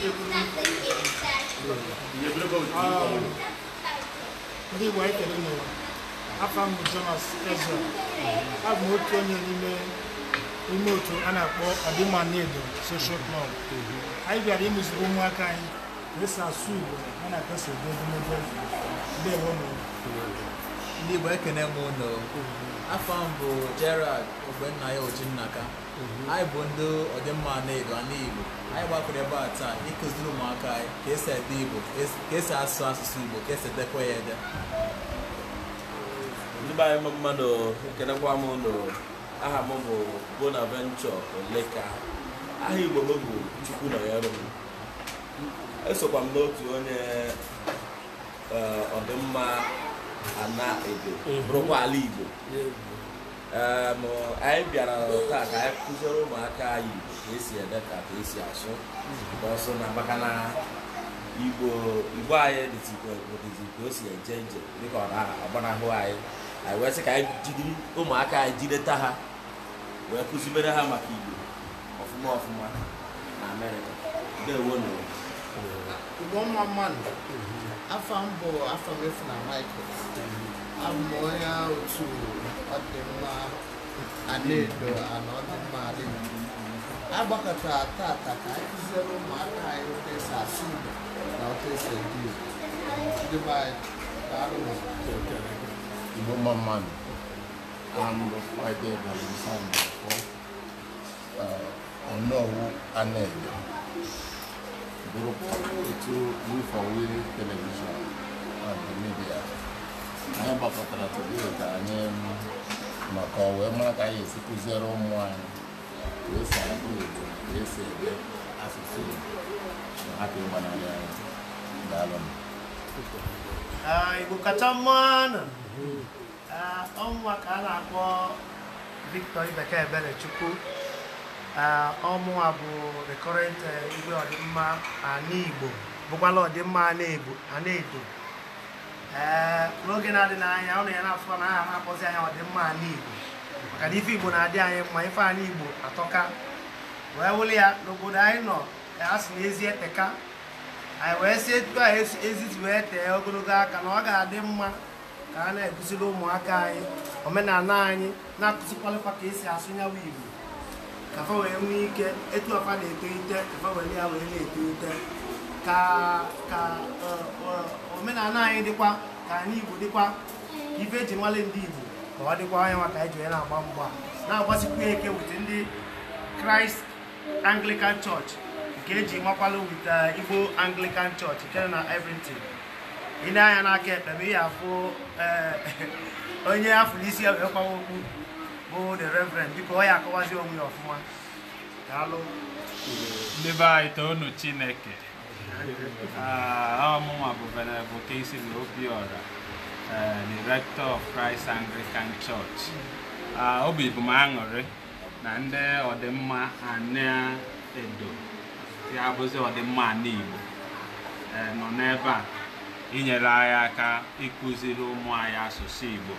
ndị igbo anyị kere n'ụwa afọ mbụ jonas ezra abụ m otu onye n'ime ime otu a na-akpọ ọdịmanedo soshal klọb anyị bịara imeziri ụmụaka anyị ka esi asụ igbo a na-akasa ebe edemede dewo n'ụwa ndị Igbo ekene m ụlọ afọ m bụ Gerald Ogbennaya Ojinnaka mhm. anyị bụ ndị ọdịmma na-edo Igbo anyị gbakọrọ ebe a taa ịkụziri ụmụaka anyị ka esi ede Igbo ka esi asụ asụsụ Igbo ka esi edekwa ya ede ndị anyị mmadụ ekenekwa m ụlọ aha m bụ Bonaventure Oleka aha Igbo m bụ Chukwu nọnyere m esokwa m n'otu onye eh, ọdịmma ana ebe. bụrụkwa ala igbo anyị bịara taa ka anyị kụziere ụmụaka anyị igbo ka esi ede ka ka esi asụ ọsọ na maka na igbo igbo anyị dịzikwa ka o si eje nje dịka ọ na-agbanahụ anyị anyị wee sị ka anyị jidiri ụmụaka anyị jideta ha wee kụzibere ha maka igbo ọfụma ọfụma na amerịka ndewo mmadụ. afam bụ afam efu na michael abụ m onye otu ọdịmma anaedo ana ọdịmma adịghị agbakọta tata ka anyị kụziere ụmụaka anyị otu esi asụ igbo na otu esi edi igbo ndị be anyị daalụ igbo mma mmadụ amụrụ friday bụrụ sanda ọnọwu anaedo bụrụkwa etu wifawe telivishọn na midia anyị gbakọtara today ka anyị maka ọ wee mara ka anyị esi kụziere ụmụ anyị ka esi agụ Igbo ka esi asụsụ n'a hapụ ịgbanarị anyị daalụ Igbo kacha ah, mma na ọnwa ka a na-akpọ Victor Ah, ọmụnwa bụ rekọret eh, igwe ọdịmma ana Igbo bụkwala ọdịmma ana edo eh, n'oge na-adị n'anya ọ na ya na-afọ na aha na-akpọzi anya ọdịmma ana Igbo maka na ife Igbo na-adị anyị mma ife ana Igbo atọka wee wuli ya n'obodo anyị nọ eh, a sị na ezi eteka anyị wee sie tupu anyị eziti wee tee ogologo aka na ọ ga-adị mma ka a na-ekụziri ụmụaka anyị omenala anyị na-akụzikwalịkwa ka esi asụ nyawa Igbo ka fa wee nwee ike etu afa na-etolite ka fa wee ya wee na-etolite ka ka omenala anyị dịkwa ka anyị Igbo dịkwa ife ji nwale ndị Igbo ka ọ dịkwa anya nwa ka anyị ji wee na-agba mgba na-agbasikwa eke wute ndị kraịst Anglican chọọchị nke eji nwakwalụ wute uh, Igbo Anglican chọọchị nke na Everton ị na-anya n'aka ekpe ma ị ya afụ eh, onye afọ n'isi ya wee kwawa okpu bụ oh, the reverend biko ọ ya akọwazi onwe ya ọfụma daalụ ndebe anyị toonu chineke ah, ọmụnwa bụ venerebụl Kingsley Obiora director eh, of Christ Anglican Church ah, obi bụ m aṅụrị na ndị ọdịmma ana-edo ya bụzi ọdịmma ana Igbo eh, nọ n'ebe a inyere anyị aka ịkụziri ụmụ anyị asụsụ Igbo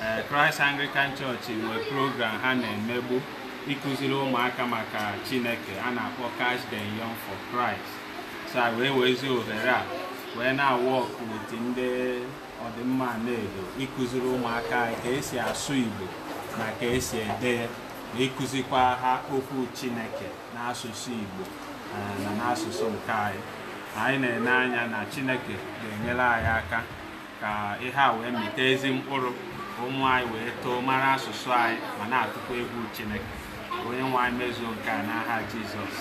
Eh, Christ Anglican Church nwe program ha na-emegbu ịkụziri ụmụaka maka Chineke a na-akpọ cash the Young for Christ sa wee wezi ohere a wee na-awọk wit ndị ọdịmma na-edo ịkụziri ụmụaka ka esi asụ Igbo na ka esi ede ikuzikwa ịkụzikwa ha okwu Chineke n'asụsụ Igbo eh, na n'asụsụ nke anyị anyị na-ene na Chineke ga-enyere anyị aka ka ihe a wee mịta ezi mkpụrụ ụmụ anyị wee too mara asụsụ anyị ma na-atụkwa egwu Chineke onye nwe anyị mezuo nke a n'aha Jizọs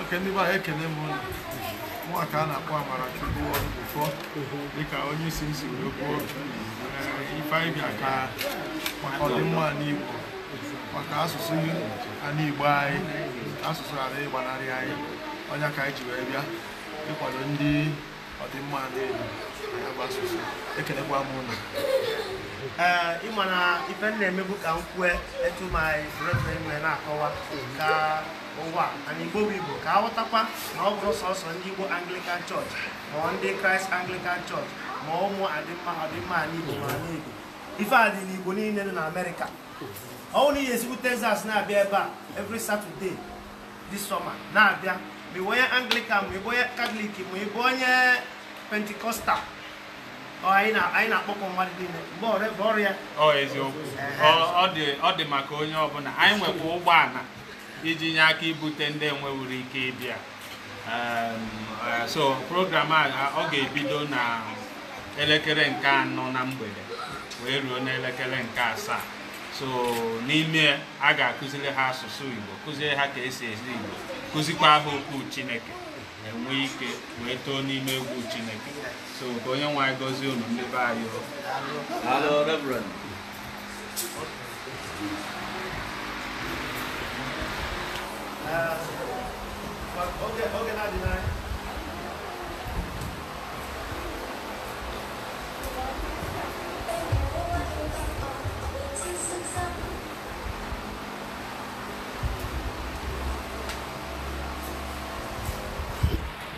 oke ndị gbaa ekene m nwaka a na-akpọ amara chukwu Ọdụbụfọ dịka onye isi nsi wee kwuo ifeanyị bịa ka ọdịmma n'Igbo maka asụsụ anụ Igbo anyị asụsụ ghara ịgbanarị anyị onye ka anyị ji wee bịa ịkwado ndị ọdịmma na-elu na ya bụ asụsụ ekelekwa m ụlọ ịma na ife m na-emebu ka m kwue etu ma anyị na-akọwa ka ụwa na igbo bụ igbo ka aghọtakwa na ọ bụrụ sọsọ ndị igbo anglican church ma ndị kraịst anglican church ma ụmụ adịmma ọdịmma n'igbo ma n'igbo ife a dị n'igbo niile dị na amerịka ọ bụrụ na ihe esigbu texas na-abịa ebe a every satọde this summer na-abịa mi bonye anglican mi bonye katọlik mi bụ onye pentikọstal anyị oh, na-akpọkọ anyị na mmadụ niile mgbe ọrụ ebe ọrụ ya ọ eziokwu ọ dị maka onye ọbụla anyị nwekwa ụgbọala iji nye aka ibute ndị enwewuru ike ịbịa eh, so program a ọ ga-ebido na elekere nke anọ na mgbede wee ruo n'elekere nke asaa so n'ime a ga-akụziri ha asụsụ Igbo kụziri ha ka esi ezi Igbo kụzikwa ha okwu chineke enwee ike wee too n'ime egwu chineke so ka onye nwe anyị gọzie unu ndị be anyị ah, Oge na-adị n'anya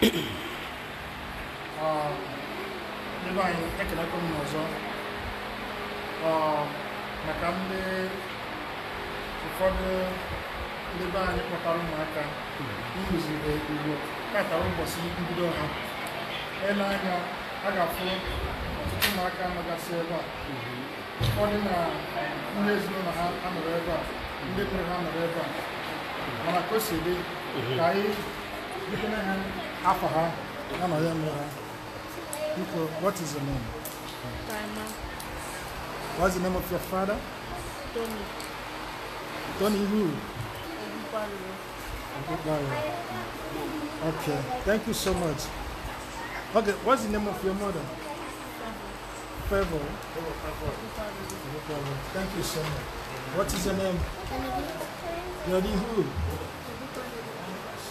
ebe anyị ekelekwa m ọzọ maka ndị ụfọdụ ndị be anyị kpọtara ụmụaka ịrụzire ugbo katara ụbọchị mbido ha ele anya a ga-afụ ọtụtụ ụmụaka amagasị ebe a ụfọdụ na ndị ezinụlọ ha anọrọ ebe a ndị mụrụ ha nọrọ ebe a mana ka o si dị ka anyị butere ha afọ I anọghị m ha biko what is your name? Grandma. What's the name of your father? Tony. Tony who? Okay, thank you so much. Okay, what's the name of your mother? Favor. Favor. Thank you so much. What is your name? Yodi who?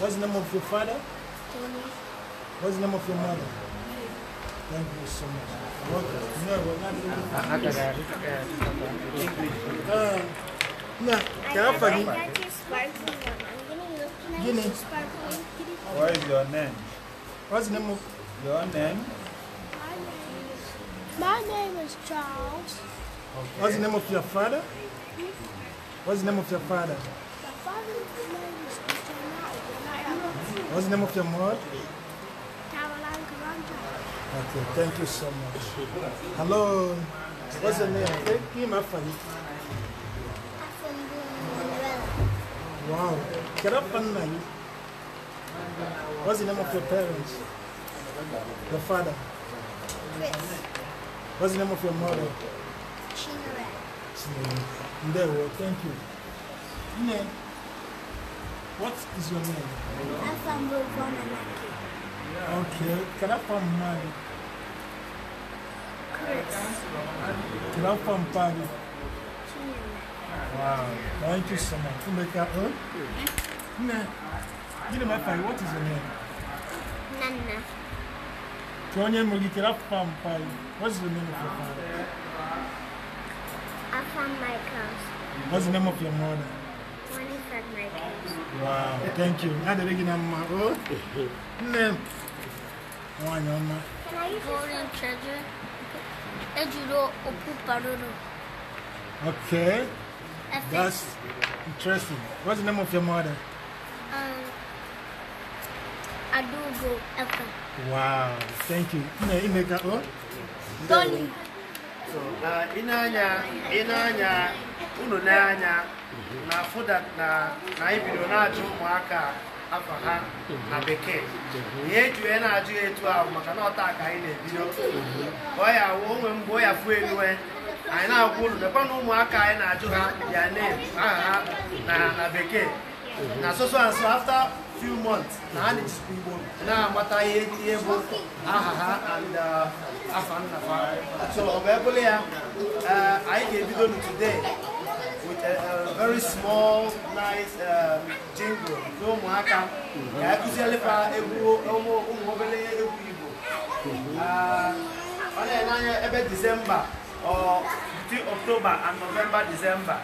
What's the name of your father? What's the name of your mother? Thank you so much. Welcome. No, we're not Uh, no, can I forgive you? I got your What is your name? What's the name of your name? My name is Charles. Okay. What's the name of your father? What's the name of your father? What's the name of your mom? Caroline Karanja. Okay, thank you so much. Hello. What's your name? Thank you, my friend. Wow. Get up and night. What's the name of your parents? The father? Chris. What's the name of your mother? Chinere. Chinere. Thank you. Name? What is your name? Afambovon Anake. Okay, can I find Mali? Chris. Can I find Paris? Wow, thank you so much. Umeka, huh? Hmm? Nah. know my father, What is your name? Nana. Tony Mugi, can I What's the name of your father? my Quel What's the name of your mother? Wow, thank you. Now they're making a mama. Name. One on Can I use golden treasure? Ejuro Okuparuru. Okay. That's interesting. What's the name of your mother? Um, Adugo Efe. Wow, thank you. Ine Ineka O? Oh. Dolly. So, uh, Inanya, Inanya, Ununanya. Mhm. na afụ na anyị bidoro na-ajụ ụmụaka afọ ha na bekee ihe eji wee na-ajụ ya etu ahụ maka na ọta ka anyị na-ebido wụ onwe mgbe mhm. ọ ya fụ eluwe anyị na-agwa ụlọ mekwa na ụmụaka anyị na-ajụ ha ya name aha ha na bekee na soso nso afta few months na ha na-ejikwa igbo na-amata ihe bụ aha ha and uh, afa nna so ọ bụ ebụla ya anyị uh, ga-ebido n'today very small nice jingle um, nke ụmụaka ka akụzielefa e ụmụ obere egwu Igbo ah, ọ na-enye ebe Disemba between October and November Disemba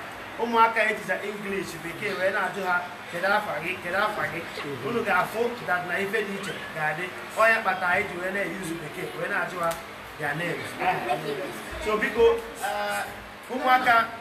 ụmụaka ejija English bekee wee na ha kedu afa gị kedu afa gị unu ga that na ife dị iche ga-adị onye kpata anyị ji wee na-eyuzu bekee wee na ha ah, biko ah, ụmụaka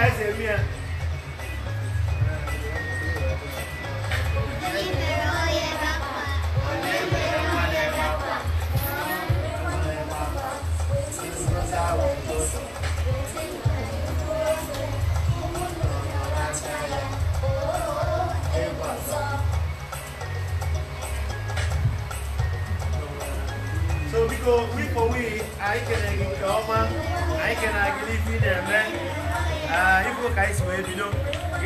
So hear me? Eh? So biko, wiko wi, anyị kere gị nke ọma, anyị kere gị n'ifi ibu ka anyị si wee bido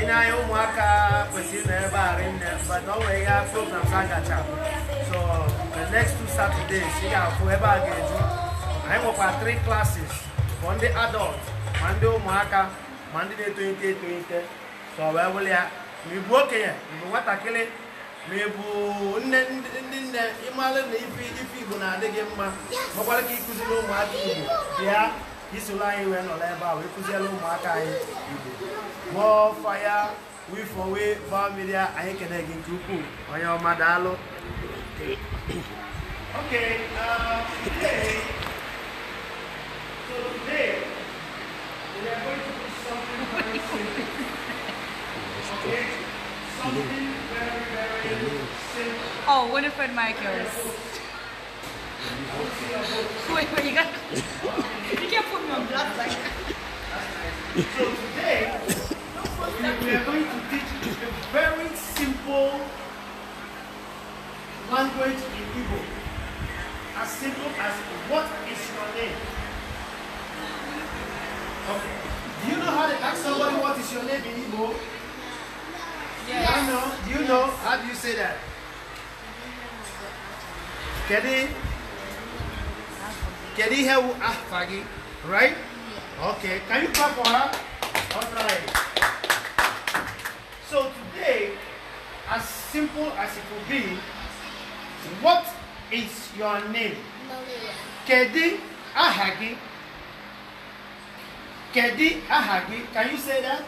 na-anya ụmụaka kwesịrị na ebe a rinne but o nwere ya programs a gacha so the next two Saturdays ị ga-afụ ebe a ga-eju anyị nwekwa three classes for ndị adult ma ndị ụmụaka ma ndị na-etolite etolite so wee wụrụ ya ma okenye mgbe nwatakịrị ma ị bụ ndị nne ịmalụ na ife Igbo na-adị mma makwara ka ịkụziri ụmụaka Igbo bịa Okay, uh, today, so today, we are going to do something very simple. Okay? Something very, very oh, simple. Oh, Winifred Michaels wait, wait, you got You can't put me on like that. so today, we are going to teach a very simple language in Igbo. As simple as what is your name? Okay. Do you know how to ask somebody what is your name in Igbo? Yes. I know. Do you know? How do you say that? Kenny? Can he have ah Fagi? Right? Okay. Can you clap for her? Alright. So today, as simple as it will be, what is your name? Maria. Kedi Ahagi. Kedi Ahagi. Can you say that?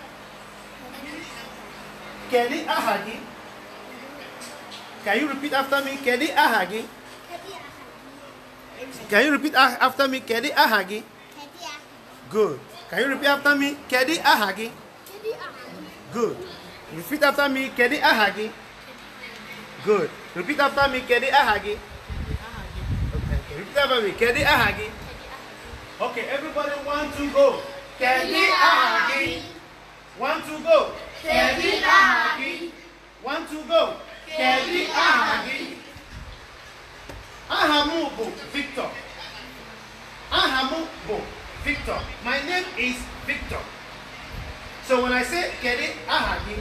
Kedi Ahagi. Can you repeat after me? Kedi Ahagi. Can you repeat after me? Kedi aha gị? Good. Can you repeat after me? Kedi aha gị? Good. Repeat after me. Kedi aha gị? Good. Repeat after me. Kedi aha gị? Okay. Repeat after me. Kedi aha gị? Okay. Everybody want to go. Kedi aha gị? Want to go? Kedi aha gị? Want to go? Kedi aha gị? Aha m Victor. Aha m Victor. My name is Victor. So when I say kedu Ahagi,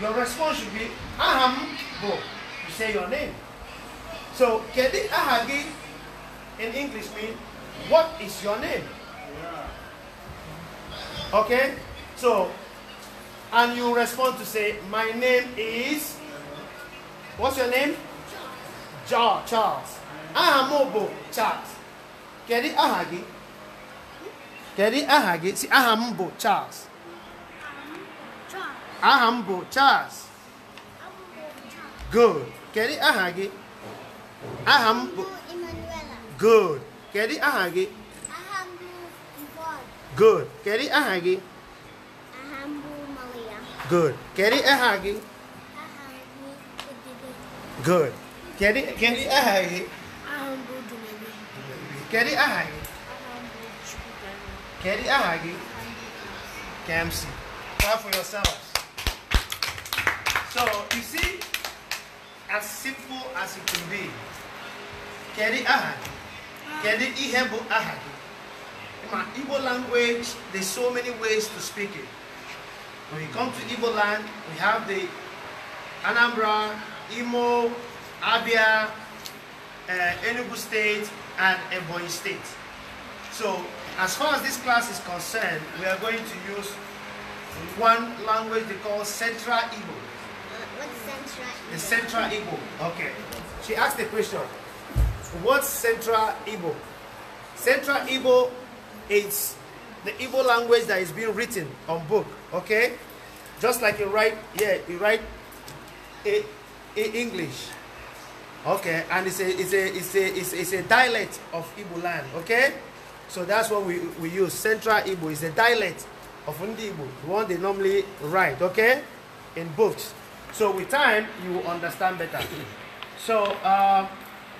your response should be aha m You say your name. So kedu Ahagi in English means what is your name? Okay? So and you respond to say my name is What's your name? John Charles aha m bụ Charles kedu aha gị kedu aha gị si aha m bụ Charles aha m bụ Charles good kedu aha gị aha m bụ good kedu aha gị good kedu aha gị good kedu aha gị good Kedi kedi ahai. Ahambo dumebi. Kedi ahai. Ahambo chukutan. Kedi ahai. Kamsi. Clap for yourselves. So you see, as simple as it can be. Kedi ahai. Kedi ihebo ahai. In my Igbo language, there's so many ways to speak it. When we come to Igbo land, we have the Anambra, Imo, Abia, uh, Enugu State, and Ebonyi State. So, as far as this class is concerned, we are going to use one language they call Central Igbo. What's Central Igbo? The Central Igbo. Okay. She asked the question, what's Central Igbo? Central Igbo is the Igbo language that is being written on book, okay? Just like you write, yeah, you write a, a English, Okay, and it's a it's a it's a it's, it's a dialect of Igbo land. Okay, so that's what we we use. Central Igbo is a dialect of Ndi the one they normally write. Okay, in books. So with time, you will understand better. so uh,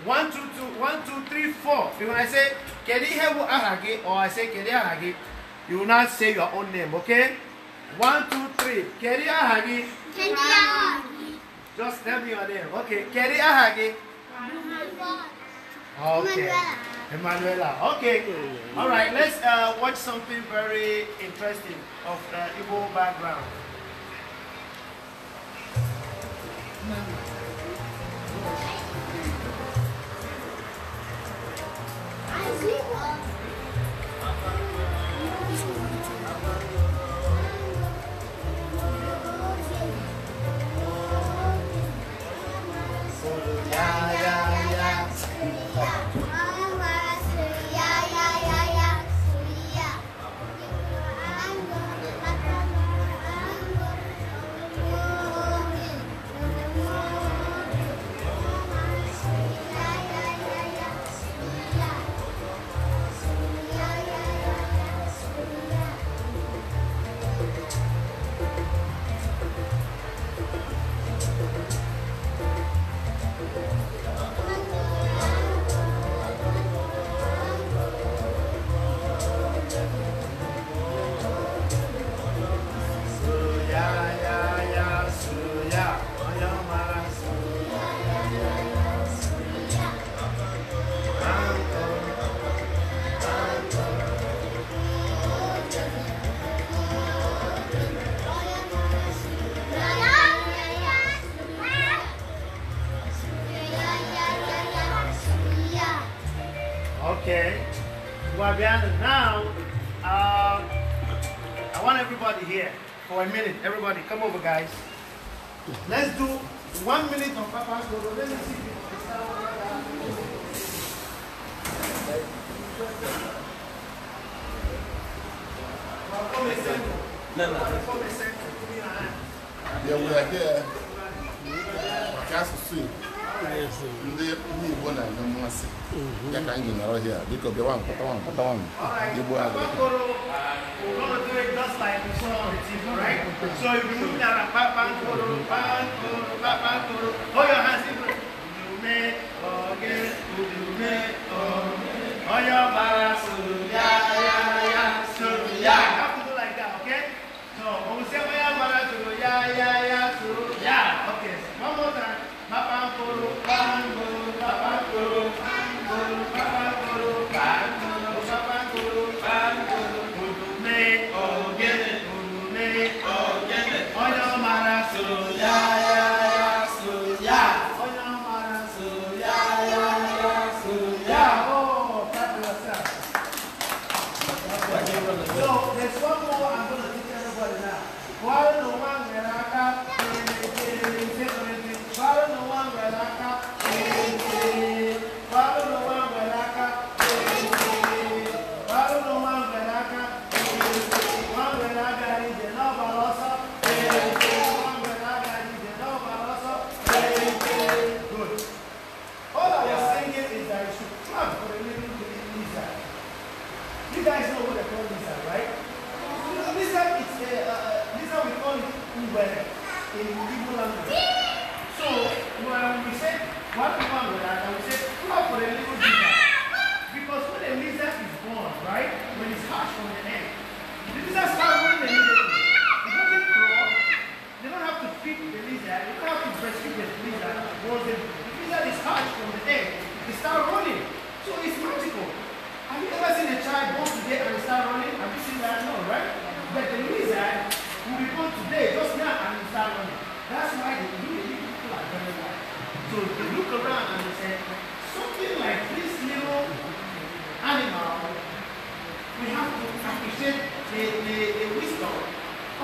one two two one two three four. When I say Kedi Hebu Ahagi or I say Kedi Ahagi, you will not say your own name. Okay, one two three Kedi Ahagi. Ahagi. Just tell me your name. Okay, Kerry Ahagi. Okay. Emanuela. Okay. All right, let's uh, watch something very interesting of the uh, Igbo background. now, um, I want everybody here for a minute. Everybody, come over, guys. Let's do one minute of Papa's Dodo. Let me see if Yeah, we are here. I can't see. ndị igbo na-enwe mmasị mhm. ya ka anyị nọrọ hịa biko bịa nwa nkọta igbo uh, a So you move down, back, back, back, back, back, hold your hands in front. You may, oh, yes, you may, your bara, yeah, yeah, yeah, so, yeah. start running. That's why the really people are very wise. So they look around and they say, something like this little animal, we have to appreciate the, the, the wisdom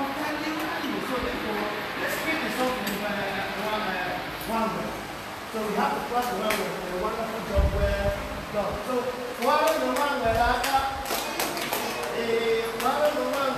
of that little animal. So therefore, let's create the something one, uh, one uh, way. So we have to trust the one way a wonderful job where God. So, one way, the one way, the other, the one way, the one way. Uh,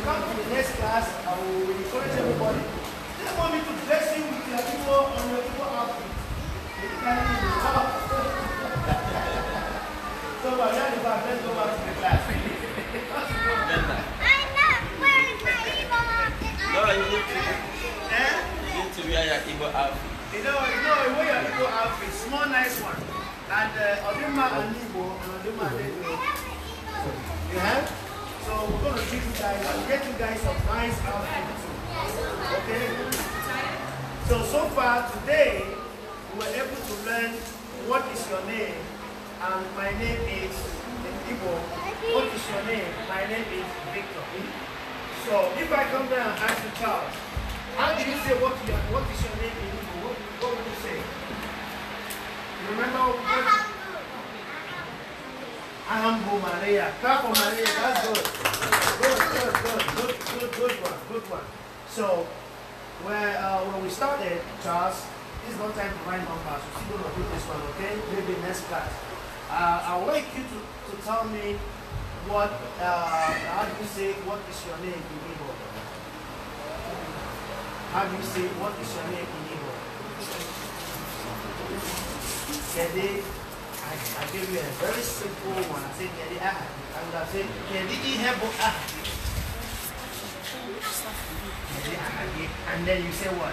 you come to the next class, I will encourage everybody. They want me to bless you with your people on your people outfit. You can't so, but that is back. Let's go back to the class. I'm not wearing my evil outfit. No, you need to. Eh? You need to wear your evil outfit. You know, you know, you wear your evil outfit. Small, nice one. And uh, Odima and Igbo and Odima and Igbo. You have? So we're going to give you guys and get you guys some nice outfits. Okay? So, so far today, we were able to learn what is your name and my name is Igbo. What is your name? My name is Victor. So if I come down and ask you, Charles, how do you say what, your, what is your name in What, what would you say? remember? Ambo Maria. Clap Maria. That's good. Good, good, good, good, good, good one, good one. So, where, uh, when we started, Charles, it's not time to write numbers. We're still going to do this one, okay? Maybe next class. Uh, I would like you to, to tell me what, uh, how do you say, what is your name in Igbo? How do you say, what is your name in Igbo? Kede I, give you a very simple one. I said, Kedi Ahad. I would have said, Kedi Ihebo Ahad. And then you say what?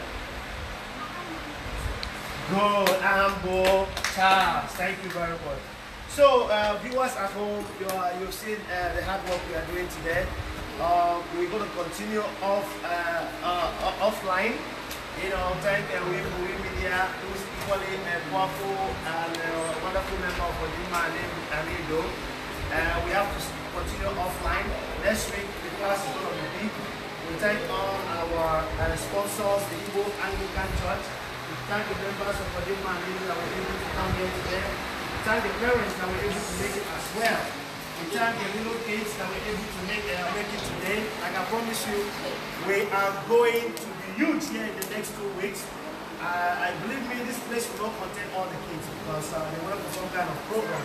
Good, Ambo Charles. Thank you very much. So, uh, viewers at home, you are, you've seen uh, the hard work we are doing today. Uh, we're going to continue off uh, uh, offline. You know, thank uh, we, we media, equally a powerful and a wonderful member of Odima named Amido. Uh, we have to continue offline. Next week, the class is going to be big. We thank all our uh, sponsors, the Igbo Anglican Church. We thank the members of Odima and Amido that were able to come here today. We thank the parents that were able to make it as well. We thank the little kids that were able to make, uh, make it today. Like I promise you, we are going to be huge here in the next two weeks. I, I believe me, this place will not contain all the kids because uh, they work to some kind of program.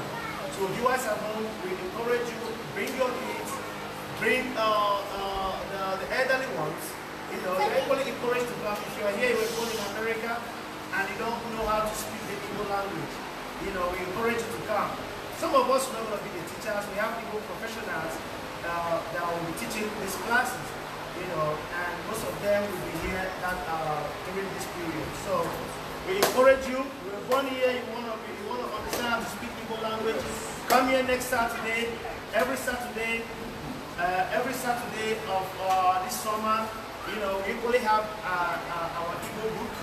So viewers at home, we encourage you, bring your kids, bring uh, uh, the, the elderly ones. You know, they're equally encouraged to come. If you are here, you were born in America, and you don't know how to speak the Igbo language, you know, we encourage you to come. Some of us are not going to be the teachers. We have people professionals uh, that will be teaching these classes you know, and most of them will be here that uh, during this period. So we encourage you. We are born here. You want to you want to understand how to speak people language. Come here next Saturday. Every Saturday, uh, every Saturday of uh, this summer, you know, we equally have uh, uh our Igbo book,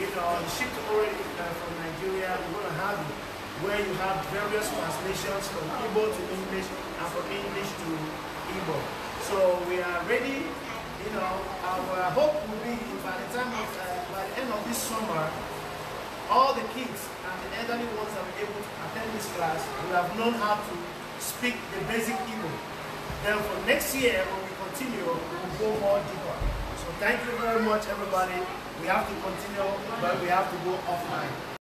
you know, shipped already uh, from Nigeria. We're going to have it where you have various translations from Igbo to English and from English to Igbo. So we are ready you know, our hope will be by the time of, uh, by the end of this summer, all the kids and the elderly ones that were able to attend this class will have known how to speak the basic Igbo. Then for next year, when we continue, we will go more deeper. So thank you very much, everybody. We have to continue, but we have to go offline.